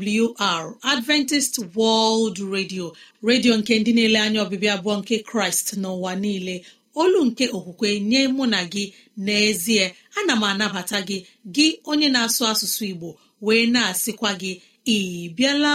AWR Adventist World Radio redio nke ndị na-ele anya ọbịbịa abụọ nke Kraịst n'ụwa niile olu nke okwukwe nye mụ na gị n'ezie ana m anabata gị gị onye na-asụ asụsụ Igbo wee na-asịkwa gị ị bịala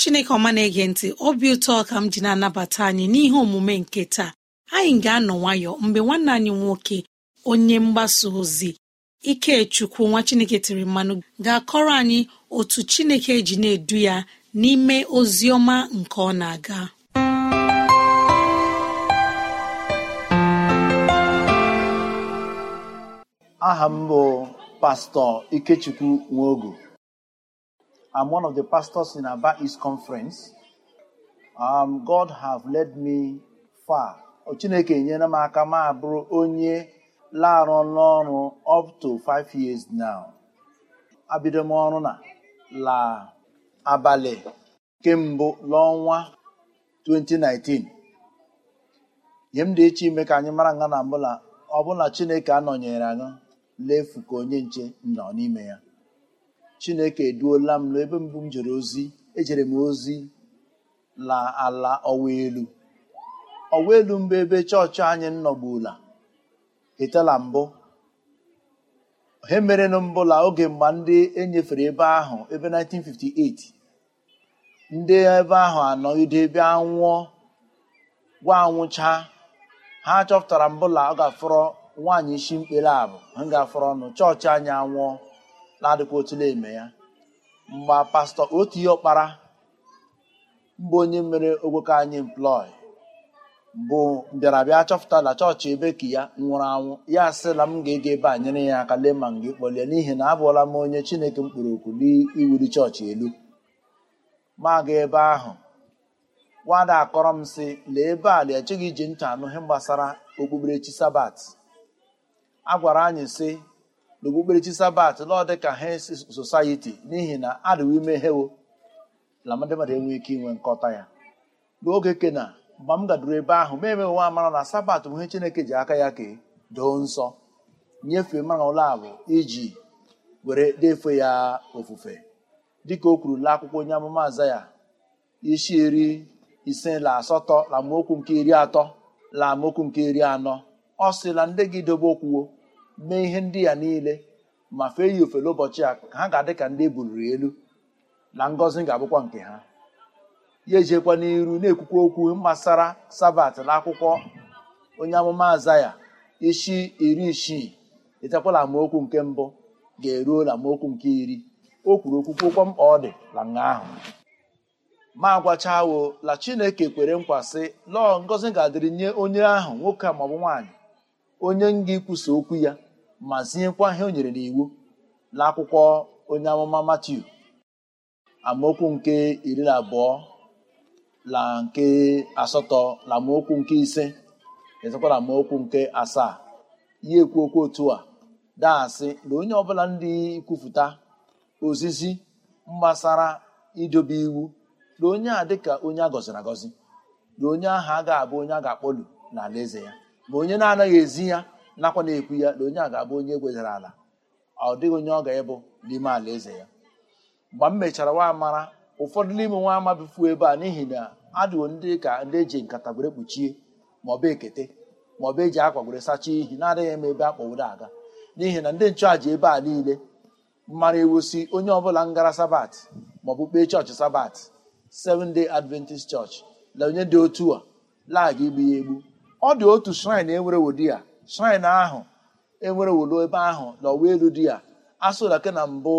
chineke ọma na-ege ntị obi ụtọ ka m ji na-anabata anyị n'ihe omume nke taa anyị ga-anọ nwayọ mgbe nwanne anyị nwoke onye mgbasa ozi ikechukwu nwa chineke tiri mmanụ ga-akọrọ anyị otu chineke ji na-edu ya n'ime ozi ọma nke ọ na-aga aha m bụ pastọ ikechukwu nwogo I'm one of the pastors in Aba East Conference. Um, God have led me far. Chineke enyere m aka m abụrụ onye larụ n'ọrụ up to five years now. Abido m ọrụ na la abalị kemgbe n'ọnwa 2019. nye m dị iche ime ka anyị mara nga na mbụla ọbụla Chineke anọnyere anyị lefu ka onye nche nọ n'ime ya. chineke eduola m n'ebe mbụ m jere ozi ejere m ozi la ala ọwa elu ọwa elu mbụ ebe chọọchị anyị nọgbula etela mbụ he na mbụla oge mgbe ndị enyefere ebe ahụ ebe 1958 ndị ebe ahụ anọgide ebe anwụọ gwa anwụcha ha chọpụtara mbụla ọ ga-afọrọ nwaanyị isi mkpere abụ ha ga-afọrọ ọnụ chọọchị anyị anwụọ na-adịkwa na eme ya mgbe pastọ otu ihe ọkpara mbụ onye mere ogboke anyị mplọị bụ mbịarabịa chọpụta na chọọchị ebe ka ya nwụrụ anwụ ya asịla m ga-ege ebe a nyere ya aka lee ma m ga n'ihi na abụọla m onye chineke mkpụrụ okwu n'iwuli chọọchị elu ma ebe ahụ nwada akọrọ m sị lee ebe a lee echeghị iji ntị anụ ihe gbasara okpukperechi sabat a gwara anyị sị n'okpukperechi sabat lọọ dị ka hes society n'ihi na adịwo ime hewo na ndị mmadụ enweghị ike inwe nkọta ya n'oge kena mgbe m gaduru ebe ahụ ma eme nwa amara na sabat bụ ihe chineke ji aka ya kee doo nsọ nyefee mara ụlọ abụ iji were defe ya ofufe dịka o kwuru la akwụkwọ onye amụma aza ya isi iri ise la asatọ la amaokwu nke iri atọ la amaokwu nke iri anọ ọ sị na ndị gị dobe okwuwo mee ihe ndị ya niile ma fee ya ofele ụbọchị a ha ga-adị ka ndị ebuliri elu na ngọzi ga-abụkwa nke ha ya ejekwa n'iru na-ekwukwa okwu gbasara sabat na akwụkwọ onye amụma azaya isi iri isii etekwala amaokwu nke mbụ ga-eruo na amaokwu nke iri o kwuru okwukwokwa mkpa ọ dị na nga ahụ ma agwachawo la chineke kwere nkwa sị lọọ ngọzi ga-adịrị nye onye ahụ nwoke maọbụ nwaanyị onye nga ikwusa okwu ya ma zinyekwa ihe o nyere n'iwu n'akwụkwọ onye amụma Matiu amaokwu nke iri na abụọ na nke asatọ na amaokwu nke ise ezekwa na amaokwu nke asaa ya ekwu okwu otu a daasị na onye ọbụla ndị kwupụta ozizi mgbasara idobe iwu na onye a dịka onye a gọziri agọzi na onye ahụ ga abụ onye a ga-akpọlu ala eze ya ma onye na-anaghị ezi ya nakwa na-ekwu ya na onye a ga-abụ onye egwezara ala ọ dịghị onye ọ ga-ịbụ n'ime ala eze ya mgbe m mechara nwa mara ụfọdụ n'ime nwa ama bifuo ebe a n'ihi na adịwo ndị ka ndị eji nkata gwere kpuchie maọbụ ekete maọbụ eji akwa gwere sachaa ihi na-adịghị m ebe akpọworo aga n'ihi na ndị nchụàja ebe a niile mara ewusi onye ọbụla ngara sabat maọbụ kpee chọọchị sabat seven day adventist church na onye dị otu a lagha igbu ya egbu ọ dị otu shrine e nwere wodi ya shrin ahụ enwere wolo ebe ahụ n'ọwa elu di ya asụlake na mbụ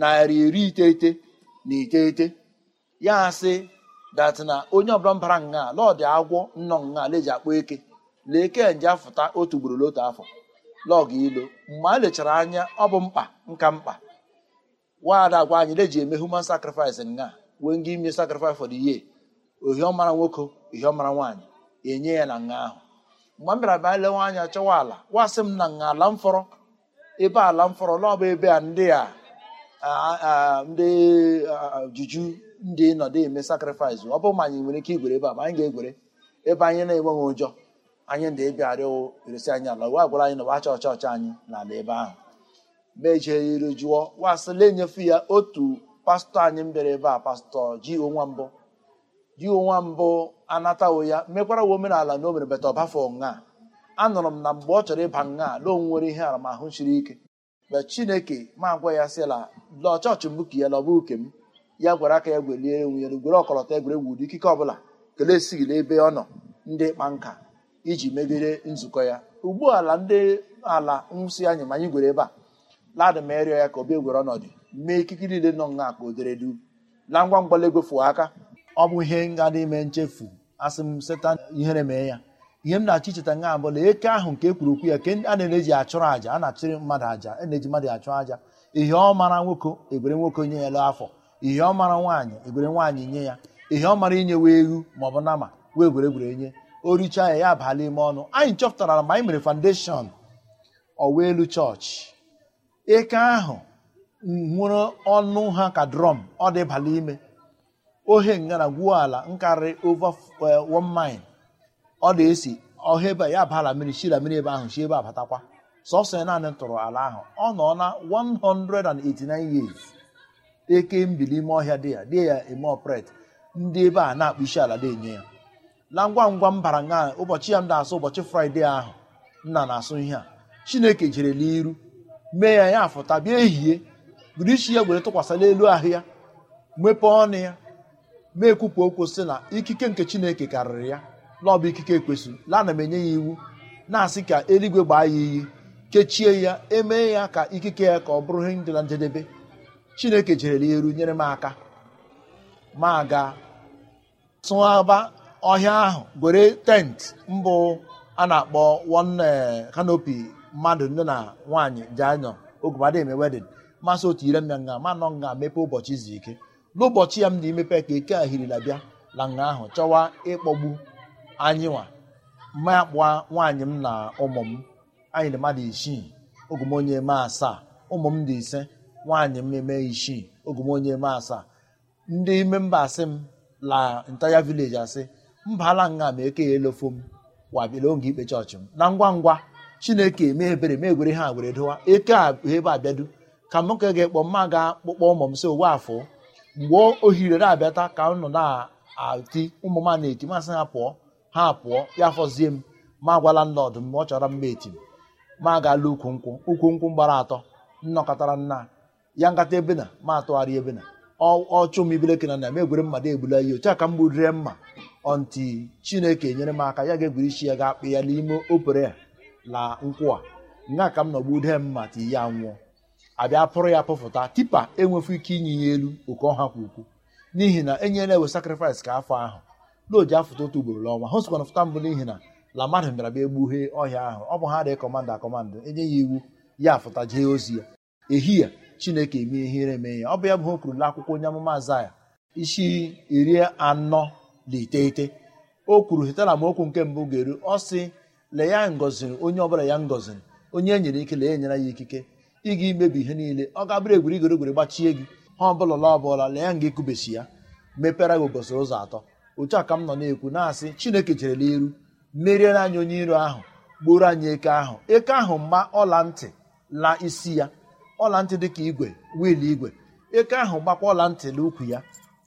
narị iri iteghete na iteghete ya sị dat na onye ọbụla mbara nga lọdị agwọ nnọ nga leji akpọ eke lee kenje afụta otu ugboro n'otu afọ lọgụ ilo mgbe a lechara anya ọ bụ mkpa nka mkpa nwaada agwa anyị leji eme human sacrifice nga wee nga ime sacrifice for the year ohiọmara nwoke ohiọmara nwaanyị enye ya na nga ahụ mgbe m bịara bịa lewe anya chọwa ala wasị m na nga ala mfọrọ ebe ala mfọrọ naọbụ ebe a ndị a ndị juju ndị nọdụ eme sakrifis ọ bụ ma anyị nwere ike igwere ebe a ma anyị ga-egwere ebe anyị na-enweghị ụjọ anyị ndị ịbịa arịọ eresi anyị ala wa gwara anyị na wacha ọcha ọcha anyị n'ala ebe ahụ ma ejeri jụọ wasịla enyefe ya otu pastọ anyị m bịara ebe a pastọ ji onwa mbụ ji onwa mbụ anatawo ya mekwara wa omenala na o mere bata ọbafọ nha anụrụ m na mgbe ọ chọrọ ịba nha na o nwere ihe aramahụ siri ike mgbe chineke ma gwa ya sịla la chọọchị mbụ ka ya lọba ke m ya gwara aka ya gwelie enwe ya gwere ọkọlọtọ egwuregwu ụdị ikike ọbụla kelee esighị n'ebe ọ nọ ndị kpa nka iji megide nzukọ ya ugbu ala ndị ala nwụsị anyị ma anyị gwere ebe a ladị ma erịọ ya ka obi egwere ọnọdụ mee ikike niile nọ nha ka o dere du na ngwa ngwa egwefu aka ọ bụ ihe dị ime nchefu asị m setan ihere mee ya ihe m na-achọ icheta nga abụla eke ahụ nke ekwuru okwu ya ke a na-eji achụrụ àjà a na-achụrụ mmadụ aja a na-eji mmadụ achụ aja ihe ọ mara nwoke egwere nwoke nye ya lụ afọ ihe ọ mara nwaanyị egwere nwaanyị nye ya ihe ọ mara inye wee ewu ma ọ bụ nama wee gwere gwere nye o richa ya ya abala ime ọnụ anyị chọpụtara ma anyị mere foundation ọwa elu chọọchị eke ahụ nwere ọnụ ha ka drọm ọ dịbala ime ohe ngara gwuo ala nkarịrị over one mile ọ na-esi ọha ebe ya bala mmiri shira mmiri ebe ahụ shi ebe abatakwa sọsọ na naanị tụrụ ala ahụ ọ nọ na 189 years eke mbili ime ọhịa dị ya dị ya eme ọpret ndị ebe a na-akpụ isi ala na-enye ya na ngwa ngwa m bara nga ụbọchị ya m na-asụ ụbọchị fraịde ahụ nna na-asụ ihe a chineke jere n'iru mee ya ya fụta bịa ehihie buru isi ya were tụkwasịla elu ahụ ya mepe ọnụ ya e ekwupụ okwu sị na ikike nke chineke karịrị ya na bụ ikike ekwesịrị lana m enye ya iwu na-asị ka eluigwe gbaa ya iyi kechie ya emee ya ka ikike ya ka ọ bụrụ ihe dị na njedebe chineke jerela ya eru nyere m aka ma ga tụaba ọhịa ahụ gwere tent mbụ a na-akpọ one kanopi eh, mmadụ nne na nwaanyị ji anyọ ogumadị eme masị otu ire m ya nga ma nọ nga mepe ụbọchị izu ike n'ụbọchị ya m na imepe ka eke ahirila bịa na nga ahụ chọwa ịkpọgbu anyị nwa ma nwaanyị m na ụmụ m anyị mmadụ isii ogumonye eme asaa ụmụ m dị ise nwaanyị m eme isii ogomonye eme asaa ndị ime mba asị m la ntaya vileji asị mba ala nga ma eke ya elofo m wabịala oge ikpe chọọchị m na ngwa ngwa chineke mee ebere mee egwere ha were dowa eke a ebe abịadu ka m ka ga-ekpọ mma ga akpụkpọ ụmụ m si owe afọ mgbe ohire na-abịata ka nọ na-ati ụmụ m na-eti masị ha pụọ ha pụọ ya fọzie m ma agwala landlọd mgbe ọ chọrọ mma eti m ma agaala ukwu nkwụ ukwu nkwụ gbara atọ nnọkọtara nna ya nkata ebe na ma atụgharị ebe na ọchụ m ibeleke na na m egwere mmadụ egbula ihe otu a ka m gburire mma ọnti chineke nyere m aka ya ga-egwuri isi ya ga-akpị ya n'ime opere la nkwụ a nga ka m nọgbu dee mma ti ya nwụọ abịa pụrụ ya pụfụta tipa enwefu ike inye ya elu oke ọha kwa ukwu n'ihi na enyela ewe sakrifis ka afọ ahụ n'oji afụta otu ugboro n'ọnwa ha sikwana fụta mbụ n'ihi na la mmadụ bịara bịa egbughee ọhịa ahụ ọ bụ ha dị kọmanda akọmanda enye ya iwu ya afụta jee ozi ya ehihie chineke eme ihere eme ya ọ bụ ya bụ ha kwuru akwụkwọ onye amụma azaya isi iri anọ na iteghete o kwuru hetara m okwu nke mbụ ga-eru ọ sị lee ya ngoziri onye bụla ya ngọziri onye e nyere ike lee enyere ya ikike ị ga imebi ihe niile ọ ga-abụrụ egwuri gbachie gị ha ọbụla la ọbụla lee nga ekubesi ya mepere gị ụbọchị ụzọ atọ otu a ka m nọ na-ekwu na-asị chineke jerela iru meriere anyị onye iro ahụ gburu anyị eke ahụ eke ahụ mgba ọla ntị la isi ya ọla ntị dị ka igwe wiil igwe eke ahụ gbakwa ọla ntị na ukwu ya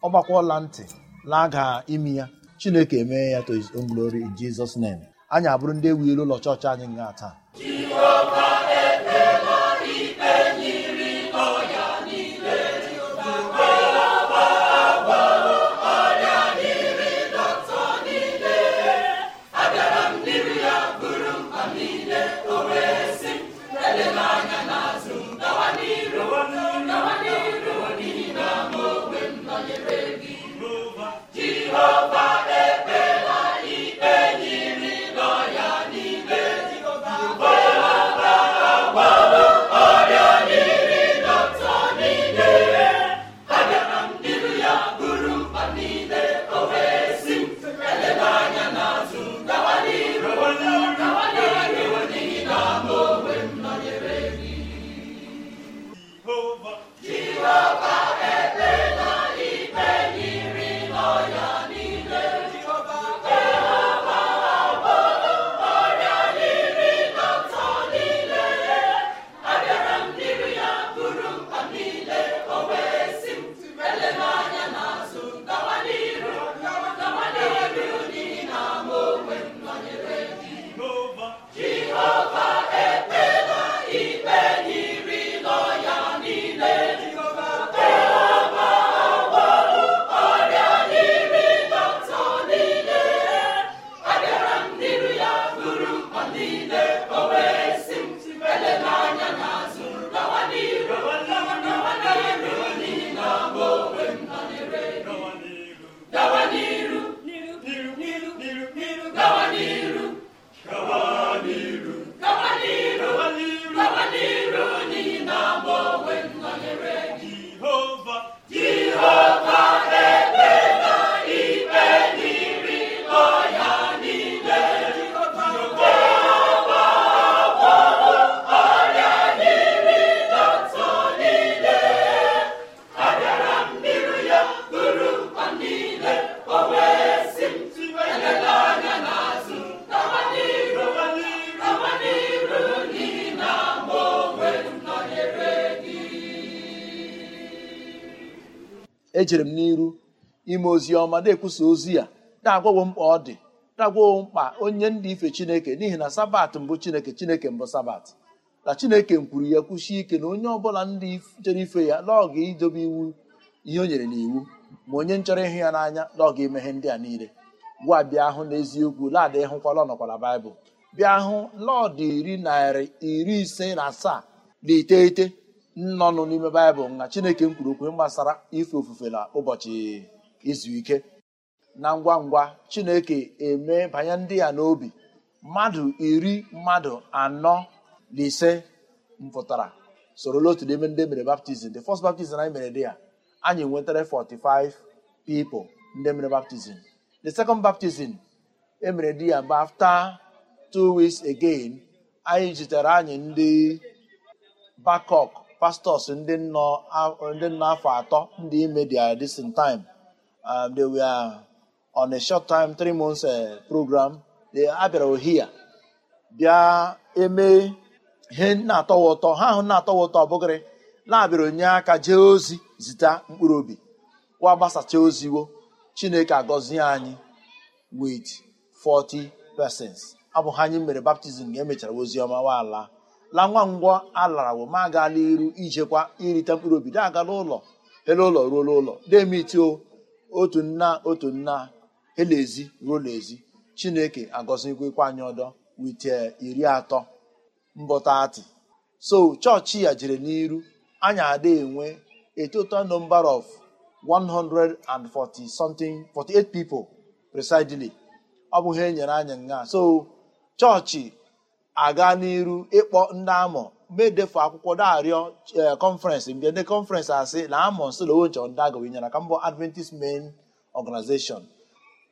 ọ gbakwa ọla ntị laga imi ya chineke emee ya to his own glory in Jesus name anyị abụrụ ndị ewu ilu ụlọ chọọchị anyị nga taa ejere m n'iru ime ozi ọma na-ekwusa ozi ya na-agwawo mkpa ọ dị na-agwawo mkpa onye ndị ife chineke n'ihi na sabat mbụ chineke chineke mbụ sabat na chineke kwuru ya kwusie ike na onye ọbụla ndị chere ife ya n'ọga idobe iwu ihe o nyere n'iwu ma onye nchọrọ ịhụ ya n'anya n'ọga emeghe ndị a niile gwa bịa hụ n'eziokwu laadị hụkwala ọnọkwala baịbụl bịa hụ lọọdụ iri narị iri ise na asaa na iteghete nnọnụ n'ime baịbụl na chineke kwuru okwu gbasara ife ofufe na ụbọchị izu ike na ngwa ngwa chineke eme banye ndị ya n'obi mmadụ iri mmadụ anọ na ise mpụtara sorola otu n'ime ndị mere baptizim the first baptizim anyị mere dị ya anyị nwetara 45 pipo ndị mere baptizim the second baptizim emere di ya mgbe after two again anyị jitere anyị ndị bakok pastors ndị nọ ndị nọ afọ atọ ndị ime their decent time um, they were on a short time three months uh, program they abịara ohia bịa eme ihe na-atọwa ụtọ ha ahụ na-atọwa ụtọ ọbụgịrị na-abịara onye aka jee ozi zita mkpụrụ obi wa gbasacha oziwo chineke agọzie anyị with 40 persons abụghị ha anyị mere baptizim ga e emechara oziọma waala la nwa ngwọ alara ma agala iru ijekwa irite mkpụrụ obi da agala ụlọ ele ụlọ ruo n'ụlọ demiti otu nna otu nna elezi ruo n'ezi chineke agọzikwa anyị ọdọ wite iri atọ mbọtatị so chọọchị ya jere n'iru anyị ada enwe a total number of 140 something 48 people presidely ọ bụghị enyere anyị nga so chọọchị aga n'iru ịkpọ ndị amọ medefu akwụkwọ darịọ kọnferensị e, mgbe ndị kọnferensị asị na amọ nsolowonchọ ndị agụ nyere aka mbọ adventist main organization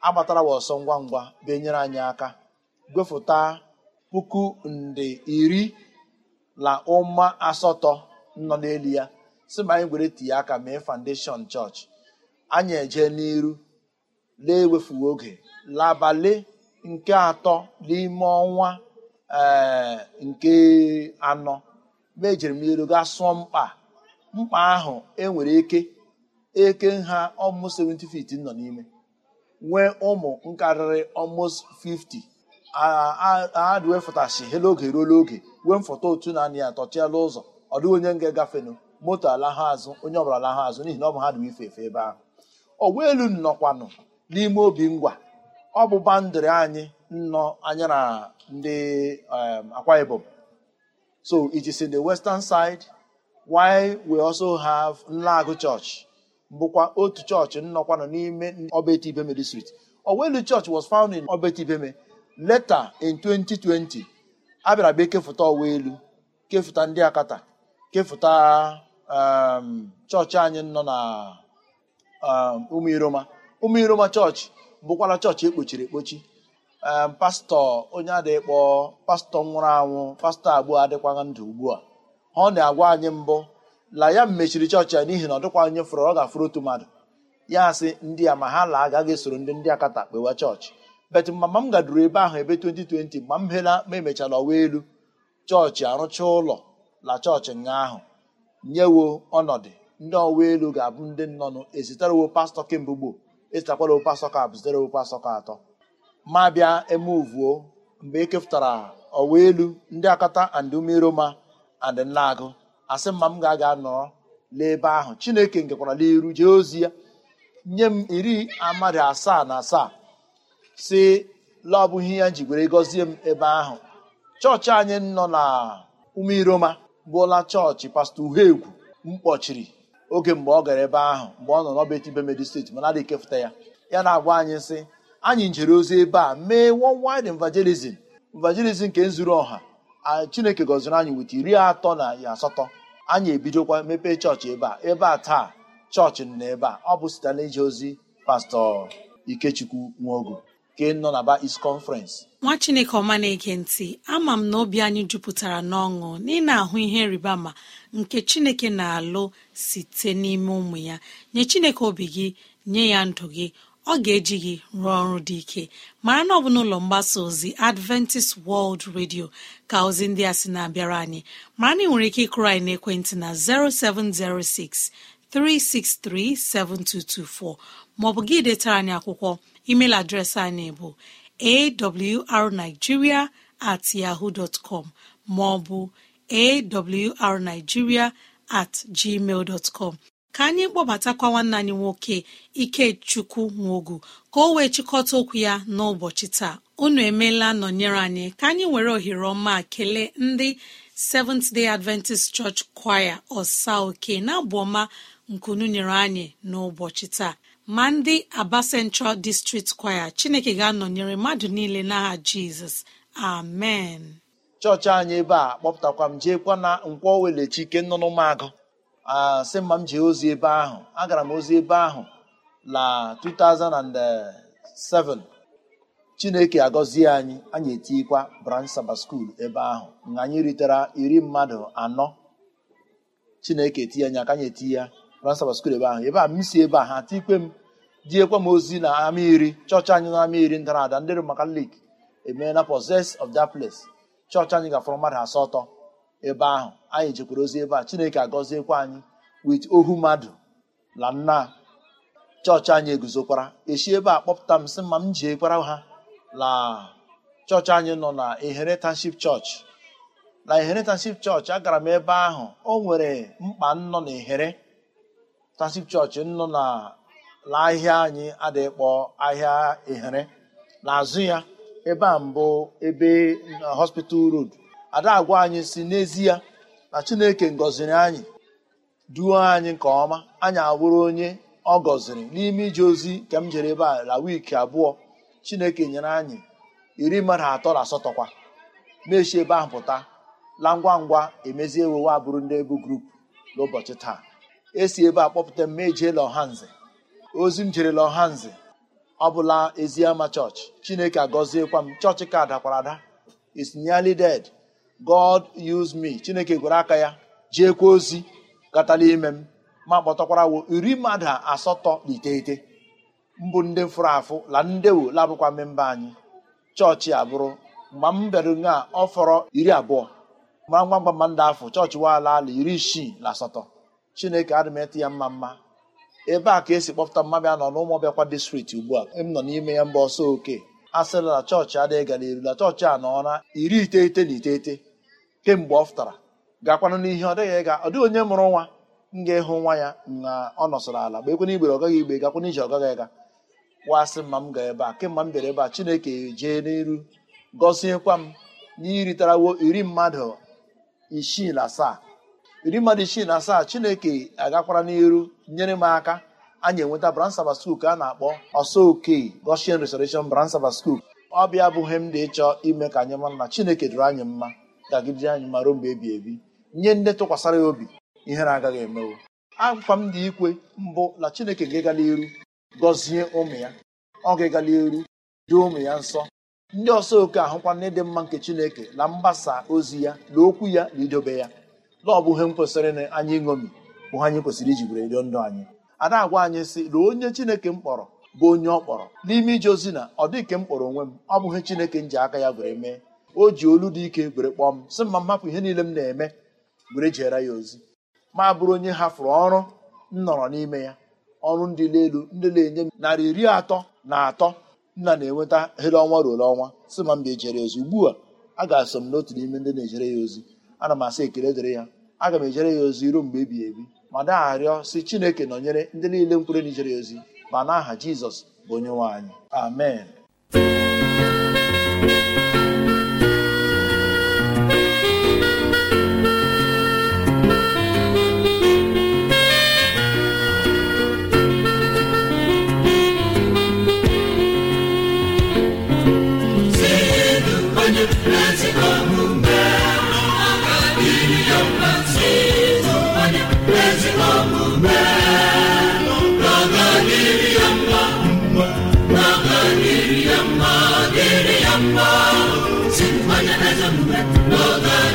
agbatara wa ọsọ ngwa ngwa benyere anyị aka gwefụta puku nde iri na ụma asatọ nọ n'elu ya si ma anyị gwere tinye aka mee foundation chọọchị anyị eje n'iru lee ewefuo oge labalị nke atọ n'ime ọnwa Eh, nke anọ mgbe ejere m elu gaa sụọ mkpa mkpa ahụ enwere eke eke nha ọmụ 70 feet nọ n'ime nwee ụmụ nkarịrị almost 50 aadụ ah, ah, ah, wefụtashi hela oge ruo oge wee mfọta otu na anị ya ụzọ ọ dịghị onye nga gafenụ moto alahụ azụ onye ọbụla alahụ azụ n'ihi na ọ bụ ha dị ife efe ebe ahụ ọ elu nnọkwanụ n'ime obi ngwa ọ bụ bandịrị anyị nnọ anya na ndị um, Akwa Ibom so it is in the western side why we also have Nlagu Church bụkwa otu chọọchị nnọkwanụ n'ime Ibeme district Owelu Church was found in Ibeme. later in 2020 a bịara bịa kefụta Owelu kefụta ndị Akata kefụta um, chọọchị anyị nọ na Umu Iroma chọọchị bụkwara chọọchị ekpochiri ekpochi pastọ onye adịkpọ pastọ nwụrụ anwụ pastọ abụọ adịkwaghị ndụ ugbu a ọ na-agwa anyị mbụ la ya mechiri chọọchị ya n'ihi na ọ dịkwa onye fụrụ ọ ga-afụrụ otu mmadụ ya asị ndị a ma ha la agaghị esoro ndị ndị akata kpewa chọọchị bet mama m gaduru ebe ahụ ebe 2020 mgbe m hela ma emechala ọwa elu chọọchị arụcha ụlọ la chọọchị nga ahụ nyewo ọnọdụ ndị ọwa elu ga-abụ ndị nnọnụ ezitarewo pastọ kemgbe gboo ezitakwarawo pastọ ka abụ zitarewo pastọ ka atọ ma bịa emuvuo mgbe e kepụtara ọwa elu ndị akata and umeroma and nlaagụ asị mma m ga-aga nọrọ n'ebe ahụ chineke nkekwara n'iru jee ozi ya nye m iri amadị asaa na asaa si la ọbụghị ya were gọzie m ebe ahụ chọọchị anyị nọ na umeiroma bụla chọọchị pastọ m kpọchiri oge mgbe ọ gara ebe ahụ mgbe ọ nọ n'ọba etibe medi steeti mana adịghị ekefụta ya ya na-agwa anyị sị anyị njere ozi ebe a mee worldwide evangelism evangelism nke nzuru ọha chineke gọziri anyị nweta iri atọ na asatọ anyị ebidokwa mepee chọọchị ebe a ebe a taa chọọchị na ebe a ọ bụ site na ije ozi pastọ ikechukwu nwaogo nke nọ na ba is conference nwa chineke ọma na-ege ntị ama m na obi anyị jupụtara n'ọṅụ na ahụ ihe ma nke chineke na-alụ site n'ime ụmụ ya nye chineke obi gị nye ya ndụ gị ọ ga-eji gị rụọ ọrụ dị ike mara na ọ bụ n'ụlọ mgbasa ozi adventist world radio ka ozi ndị a sị na-abịara anyị mara na ị nwere ike ịkụrụ anyị ekwentị na 0706 363 7224 maọbụ gị detara anyị akwụkwọ email adreesị anyị bụ awrnigeria at yahoo dot com maọbụ awrnigeria at gmail dot ka anyị kpọbatakwa nwanne anyị nwoke ikechukwu nwogu ka o wee chịkọta okwu ya n'ụbọchị taa unu emeela nọnyere anyị ka anyị were ohere ọma kelee ndị seventh day adventist church choir ọsa oke na-abụ ọma nkunu nyere anyị n'ụbọchị taa ma ndị aba central district choir chineke ga-anọnyere mmadụ niile n'aha jizọs amen chọọchị anyị ebe a kpọpụtakwa m jeekwa na nkwọ welechi ike nọ n'ụmụagụ asị oh mma m jee ozi ebe ahụ agara m ozi ebe ahụ na 2007 chineke agọzie anyị anyị etikwa branch saba skuul ebe ahụ na anyị ritara iri mmadụ anọ chineke etinye anya aka anyị eti ya branch saba skuul ebe ahụ ebe a m si ebe a ha tikwe m diekwa m ozi na ama iri chọọchị anyị e na ama iri ndara ada ndị maka lik emeela possess of that place chọọchị anyị gafọrọ mmadụ asatọ ebe ahụ anyị jekwara ozi ebe a chineke agọziekwa anyị wit ohu mmadụ na nna chọọchị anyị eguzokwara esi ebe a kpọpụta m sị ma m jiekwara ha na chọọchị anyị nọ na Inheritance chọọchị na Inheritance chọọchị agara m ebe ahụ o nwere mkpa nnọ na tanship chọọchị nọ na anyị adịghị ahịa ehere n'azụ ya ebe a mbụ ebe hospital road ada agwa anyị si n'ezie na chineke ngọziri anyị duo anyị nke ọma anyị awụrụ onye ọ gọziri n'ime ije ozi nke m jere ebe a la wiiki abụọ chineke nyere anyị iri mmadụ atọ na asatọ kwa mechi ebe ahụ pụta la ngwa ngwa emezie ewewe abụrụ ndị ebu grupu n'ụbọchị taa esi ebe a kpọpụta mme ejeela ọhanze ozi m jerela ọhanze ọ bụla ama chọọchị chineke agọziekwa m chọọchị ka dakwara ada is ded god use me chineke gwere aka ya kwa ozi gatala ime m ma kpọtọkwara wo iri mmadụ asatọ na iteghete mbụ ndị fụrụ afụ la ndewo labụkwa mmemba anyị chọọchị abụrụ mgbe m bịara ọ fọrọ iri abụọ mara ngwa ngwa mma ndị afọ chọọchị waala ala iri isii na asatọ chineke adịmeti ya mma mma ebe a ka esi kpọpụta mmabịa nọ n'ụmụ ọbịakwa distrikti ugbu a m nọ n'ime ya mba ọsọ oke a sịla chọọchị adịghị gara erula chọọchị a nọ na iri iteghete na iteghete kemgbe ọ fụtara gakwanụ n'ihe ọ dịghị ịga ọ dịghị onye mụrụ nwa m ga-ịhụ nwa ya na ọ nọsọrọ ala gba ekwena igbere ọgaghị igbe gakwana ije ọ ịga wasị mma m ga ebe a kemgbe m bịara ebe a chineke jee n'iru gọziekwa m n'iritarawo iri mmadụ isii na asaa iri mmadụ isii na asaa chineke agakwara n'iru nyere m aka anyị enweta bransaba Sabbath School ka a na-akpọ ọsọ oke Goshen Restoration branch Sabbath School ọ bịa abụghị m dị ịchọ ime ka anyị mara na chineke dụrụ anyị mma gagidere anyị ma ruo mgbe ebi ebi nye ndị tụkwasara ya obi ihere agaghị emewo akwa m dị ikwe mbụ na chineke ga-egala iru gọzie ụmụ ya ọ ga-egala iru dị ụmụ ya nsọ ndị ọsọ oke ahụkwa na ịdị mma nke chineke na mgbasa ozi ya na okwu ya na idobe ya na ọ bụ ihe m kwesịrị na anyị ṅomi bụ anyị kwesịrị iji were edo ndụ anyị ada agwa anyị sị na onye chineke m kpọrọ bụ onye ọ kpọrọ n'ime ije ozi na ọ dịghị ka m kpọrọ onwe m ọ bụghị chineke m ji aka ya were mee o ji olu dị ike were kpọọ m sị mma m hapụ ihe niile m na-eme were jeere ya ozi ma bụrụ onye hafụrụ ọrụ m nọrọ n'ime ya ọrụ ndị elu ndị na-enye m narị iri atọ na atọ nna na-enweta hele ọnwa ruole ọnwa si ma m ga-ejere ya ozi ugbu a a ga-asọ m n'otu n'ime ndị na-ejere ya ozi ana m asa ekele dịrị ya aga m ejere ya ozi ruo mgbe ebighị ebi ma na-arịọ si chineke nọnyere ndị niile mkpụrụ na ijere ya ozi ma na aha jizọs bụ onye nwe anyị amen Mother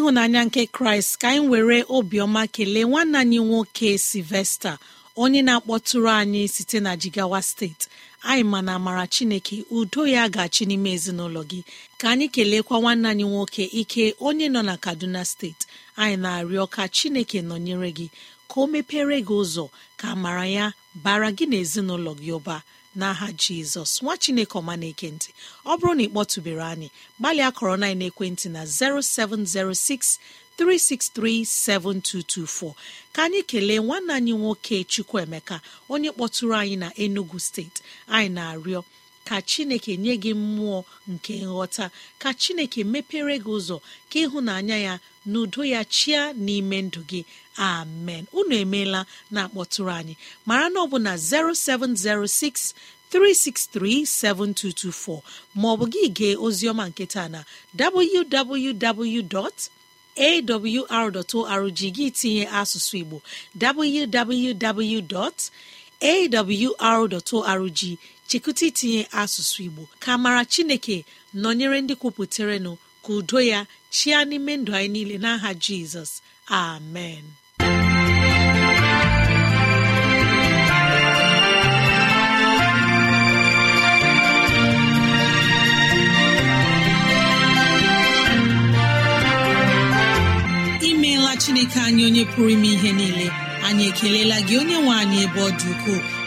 ịhụnanya nke kraịst ka anyị were obiọma kelee nwanne anyị nwoke silvesta onye na-akpọtụrụ anyị site na jigawa steeti anyị ma na amara chineke udo ya ga-achị n'ime ezinụlọ gị ka anyị keleekwa nwanne anyị nwoke ike onye nọ na kaduna steeti anyị na-arịọ ka chineke nọnyere gị ka o mepere gị ụzọ ka amara ya bara gị na ezinụlọ gị ụba n'aha jizọs nwa chineke ọma na ekentị ọ bụrụ na ị kpọtụbere anyị gbalịa kọrọ na ekwentị na 0706 7224 ka anyị kelee nwanne anyị nwoke chukwuemeka onye kpọtụrụ anyị na enugu steeti anyị na-arịọ ka chineke nye gị mmụọ nke nghọta ka chineke mepere gị ụzọ ka ịhụnanya ya n'udo ya chia n'ime ndụ gị amen unu emeela na akpọtụrụ anyị mara na ọ bụ na 0706 363 7224 maọbụ gị gee Ozioma nketa na www.awr.org gị tinye asụsụ igbo www.awr.org chekwute itinye asụsụ igbo ka mara chineke nọnyere ndị kwupụtaranụ ka udo ya chịa n'ime ndụ anyị niile n'aha jizọs amen imeela chineke anyị onye pụrụ ime ihe niile anyị ekelela gị onye nwe anyị ebe ọ dị ukwuu.